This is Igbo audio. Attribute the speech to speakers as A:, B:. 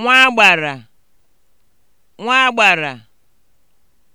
A: nwagbàrà nwagbàrà